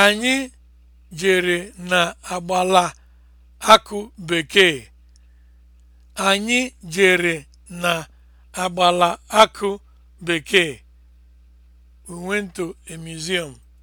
Anyị jere n'agbala akụ bekee. Anyị jere akụ bekee. We went